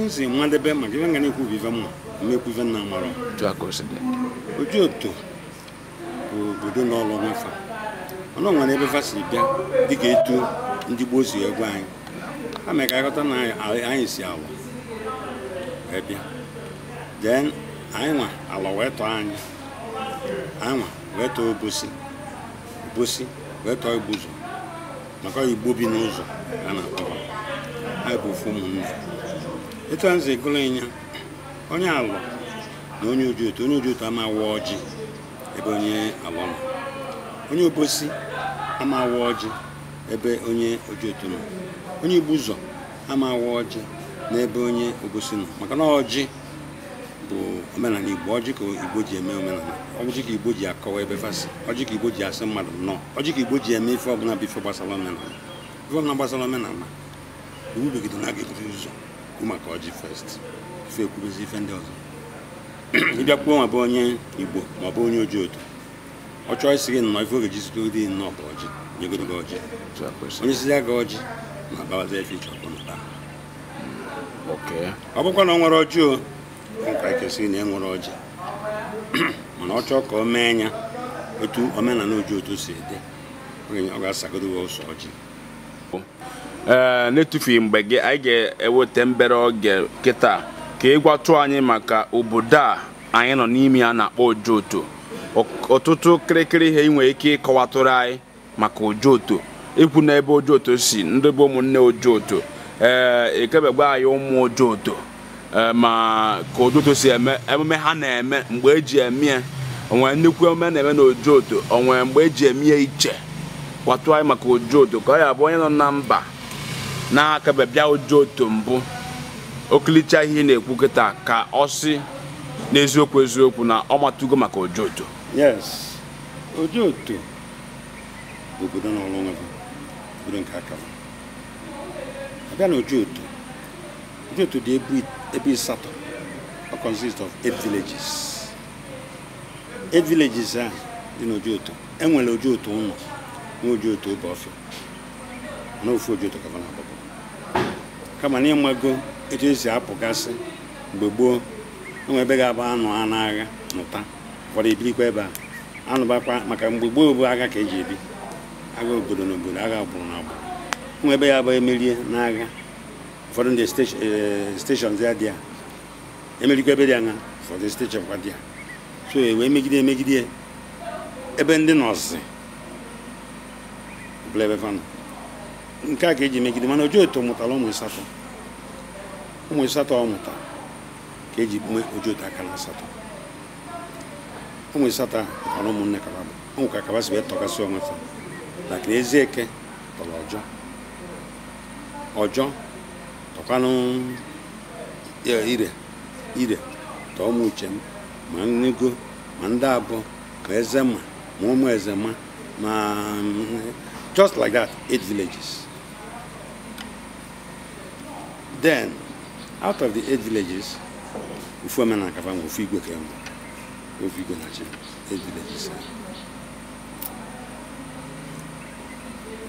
nze mmadebe maka ibe nga na-ekwu ive mma mekwuive nna mara otu bụ obodo na ọlụ nwefa ọnụ nwere ebe fa si bịa dịka etu ndị gboo si egwu anyị ha mere ka na anyị si awa wee bịa den anyị nwa ala wee tọọ anyị anyị nwa wee tọọ maka igbo bi n'ụzọ a na-akpọ anyị bụ ofu ụmụnne etu a nze gụrụ ịnya onye alọ na onye uju otu onye uju otu ama awa ọjị ebe onye alọ nọ onye obosi ama awa ọjị ebe onye oji otu nọ onye ibu ụzọ ama awa ọjị ebe onye obosi nọ maka na ọjị bụ omenala igbo ọjị ka igbo ji eme omenala ọjị ka igbo ji akọwa ebe fasị ọjị ka igbo ji asị mmadụ nnọọ ọjị ka igbo ji eme ife ọbụla bụ ife gbasara omenala ife ọbụla gbasara omenala iwu begidona ga-eburu ụzọ maka ọjị fest ife ekwuruzi ife ndị ọzọ ịbịakwuo ma bụ onye igbo de ọ bụ onye oji otu ọ chọọ de gị nnọọ ife oge ji zitoro dị nnọọ bụ ọjị nyegoro gị ọjị onye sizi aga ọjị ma gbawaza ife iche ọkpọ na ọ bụkwa na ọ nwere ọjị o nka ekesịrị na e nwere ọjị com a chọọ ka o mee anya otu omenala oji otu si dị ọ ga-asagoro ụwa ụsọ ọjị Eh, na mgbe gị anyị ga-eweta mbere oge kịta ka ị gwatụ anyị maka obodo a anyị nọ n'ime a na-akpọ Ojoto ọtụtụ kịrịkịrị ihe ị nwere ike ịkọwatụrụ anyị maka Ojoto ikwu na ebe Ojoto si ndị bụ ụmụnne Ojoto ee eh, ekebegba anyị ụmụ Ojoto eh, ma ka Ojoto si eme emume ha na-eme mgbe eji eme ya onwere nnukwu emume na-eme na Ojoto onwere mgbe eji emie iche kwatụ anyị maka Ojoto ka ọ ya bụ onye nọ na mba n'aka bịa ụjọ otu mbụ okilicha ihe na-ekwu kịta ka ọ sị n'eziokwu eziokwu na ọ matugo maka ojo oto yes ojo oto bụ obodo n'ọrụ onwe gị obodo nke aka m abịa na ojo oto ojo oto dị ebe ịsatọ ọ consist of eight villages eight villages a dị n'ojo oto enwere ojo oto ụlọ nwee ojo oto obe ọfịa na ofu ojo oto ka na-agbapụ kama na ịmago etu esi apụgasị mgbe gboo enwe ebe ga-abụ anụ a n'agha mụta ụfọdụ ebirikwa ebe a anụbakwa maka mgbe gboo bụ agha ka eji ebi agha obodo na obodo agha agbụrụ na agbụrụ enwe ebe ya bụ emerie n'agha ụfọdụ ndị steshọn eh, ya dị a emerikwa ebe dị anya ụfọdụ steshọn kwa dị ya so e wee megide emegide ebe ndị nọọsụ bụla ebe fanụ nke a ga-eji megide mana oju otu mụtara ụmụ asatọ ụmụ asatọ ọ mụta ka eji mee oju otu akara asatọ ụmụ asatọ a mụtara ụmụnne kaba bụ ụmụ ka kaba si wee tọgasị onwe fa lakịrị ezi eke tọrọ ọjọ ọjọ tọkwanụ ire ire tọọ ụmụ uche m ma nnugo ma ndị abụọ ma eze ma ma ụmụ eze ma ma just like that eight villages Then, out of the eight villages, Ufuamen and Kavango, Figo came. Figo Nachi, eight villages.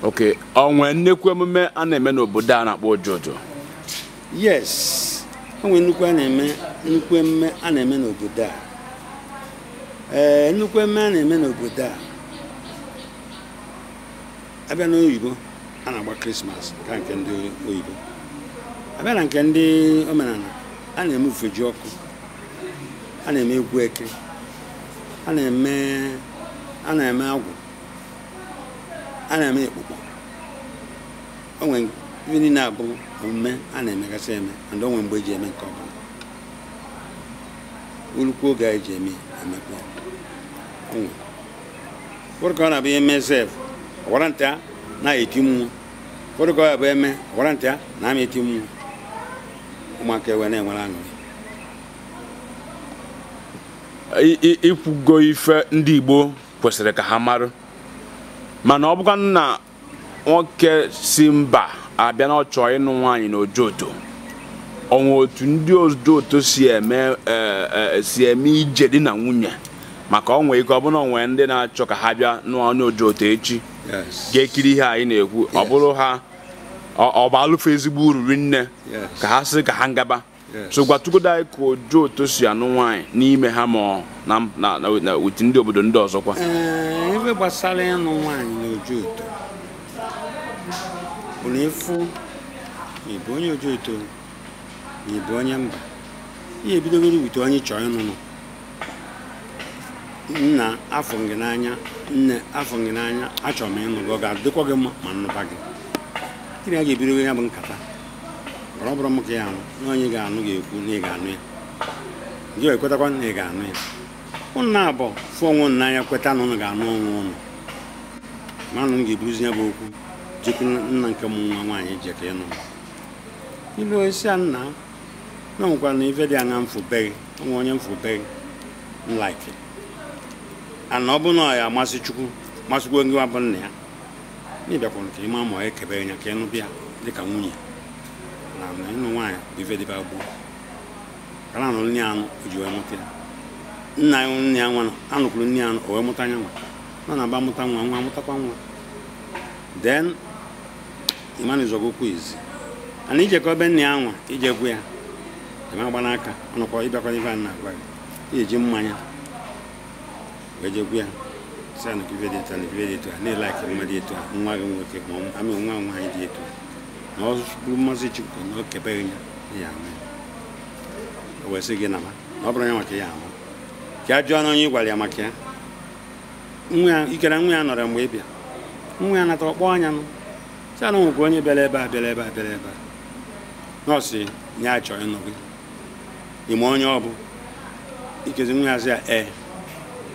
Okay, onwe nnekwu emume a na-eme n'obodo a na-akpọ Ojojo. Yes, onwe nnukwu a na-eme nnukwu emume a na-eme n'obodo a. Ee, eh, nnukwu emume a na-eme n'obodo a. Abịa n'oyibo, a na-agba Krismas ka nke ndị oyibo. abịa na nke ndị omenala a na-eme ufeji ọkụ a na-eme egwu eke a na-eme a na-eme agwụ a na-eme ekpukpo onwe ihe niile abụ omume a na-emegasị eme and onwe mgbe eji eme nke ọbụla urukwu oge anyị e ji eme emekwa onwe ụfọdụ ka ọ na-abụ eme zef ọwara nta na-eti mmụọ ụfọdụ ka ọ bụ eme ọwara nta na-ama eti mmụọ ụmụaka ewe na-enwere aṅụrị ikwugo ife ndị Igbo kwesịrị ka ha marụ mana ọ bụkwa na nwoke si mba abịa na ọ chọọ ịnụ nwaanyị na ojoto onwe otu ndị ojoto si eme e, e, si eme ije di na nwunye maka onwe ike ọbụla onwe ndị na-achọ ka ha bịa n'ọnụ ojoto echi ga-ekiri ihe anyị na-ekwu ọ bụrụ ha ọ bụ alụfụ ezigbo uru rinne ka ha sị ka ha ngaba so gwatugodo anyị ka oju otu si anụ nwaanyị n'ime ha ma na witi ndị obodo ndị ọzọkwa ebe gbasara ịnụ nwaanyị na oju oto bụrụ ịfụ ịbụ onye oju oto na ịbụ onye mba ihe ebidogoro wute onye chọọ ịnụnụ nna afọ gị n'anya nne afọ gị n'anya achọrọ m ịnụ gị ọ ga-adịkwa gị mma ma nnụba gị tiri a ga-ebido ya bụ nkata ọ bụrụ m ka ya anụ na onye ga-anụ ga-ekwu na ị ga-anụ ya gị ekwetakwa na ị ga-anụ ya ụnụ na-abụ fụ onwe ụnụ n'anya kweta na ụnụ ga-anụ onwe ụnụ ma nụ m ga-eburuzi ya bụ okwu jekwu nna nke m nwa nwaanyị jeka nụ. ilu onyeisi a nna na nwekwara na ife dị anya mfụbeghị onwe onye mfụbeghị nlaiki ana ọ bụ na ọ ya chukwu masịkwa onye wa bụ nna ya ị bịakwara ka ịma ma ekebe anya ka ịnụ bịa dịka nwunye na na ịnụ nwaanyị bụ ife dịbe agbụọ kara anụ nne anụ o ji wee mụta ya nna ya nne ya nwa anụkwuru nne anụ o wee mụta anya nwa nọ na-aba mụta nwa nwa mụtakwa nwa then ịmanụzọgokwu izi ana ebe nne ya iji egwu ya ịma agba n'aka ọnụkwa ịbịakwa ife a na-agwa gị iji mmanya wee jekwu ya sanụ ki ibe dị etu a na etu nwa gị nwoke ma nwa etu ọ bụrụ mmasị Chukwu na o ya o na ọ bụrụ ya maka ya ama ka jụọ na onye ị gwara ya maka ya nwa mgbe ị nwa ya natara ọkpọ anya si anụ onye bịara ebe a bịara ebe a bịara ebe a ya chọọ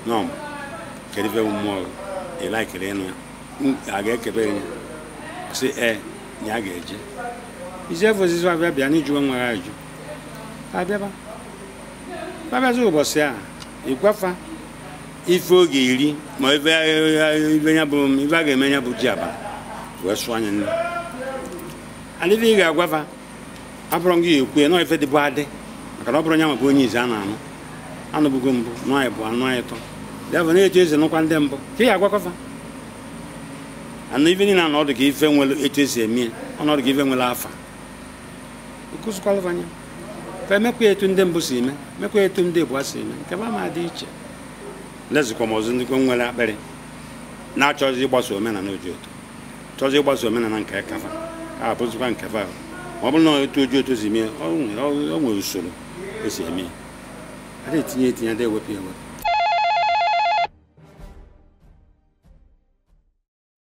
onye kedu ife mmụọ ị ịnụ a ga-ekebe enyi si ɛ e, na ya ga-eje iji efe ozizi abịa bịa na ijuwe nwere ajụ abịaba abịazi ụbọchị a ife oge iri ma ife a ga-eme ya bụ ji aba wee sụọ anya nne adịghị ị ga-agwafa abụrụ adị maka na ọ bụrụ nya maka onye a na mbụ bụ ya bụ na-eji eze nụkwa ndị mbụ ka ị agwakọfa ana ife niile na ọdụ ka ife nwere etu esi eme ya ọnọdụ ka ife nwere afa kụzikwalụfanya ka emekwa etu ndị mbụ si eme mekwa etu ndị bụ si eme nke ma dị iche lezikwa m ọzọ ndịkwa nwere akpịrị na-achọzi ịgbasa omenala oji otu chọzi ịgbasa omenala nke kafa a bụzikwa nke fa ma ọ bụrụ na otu oji otu si mee o nwere usoro esi eme ya adịghị etinye etinye adịghị ewepụ ewepụ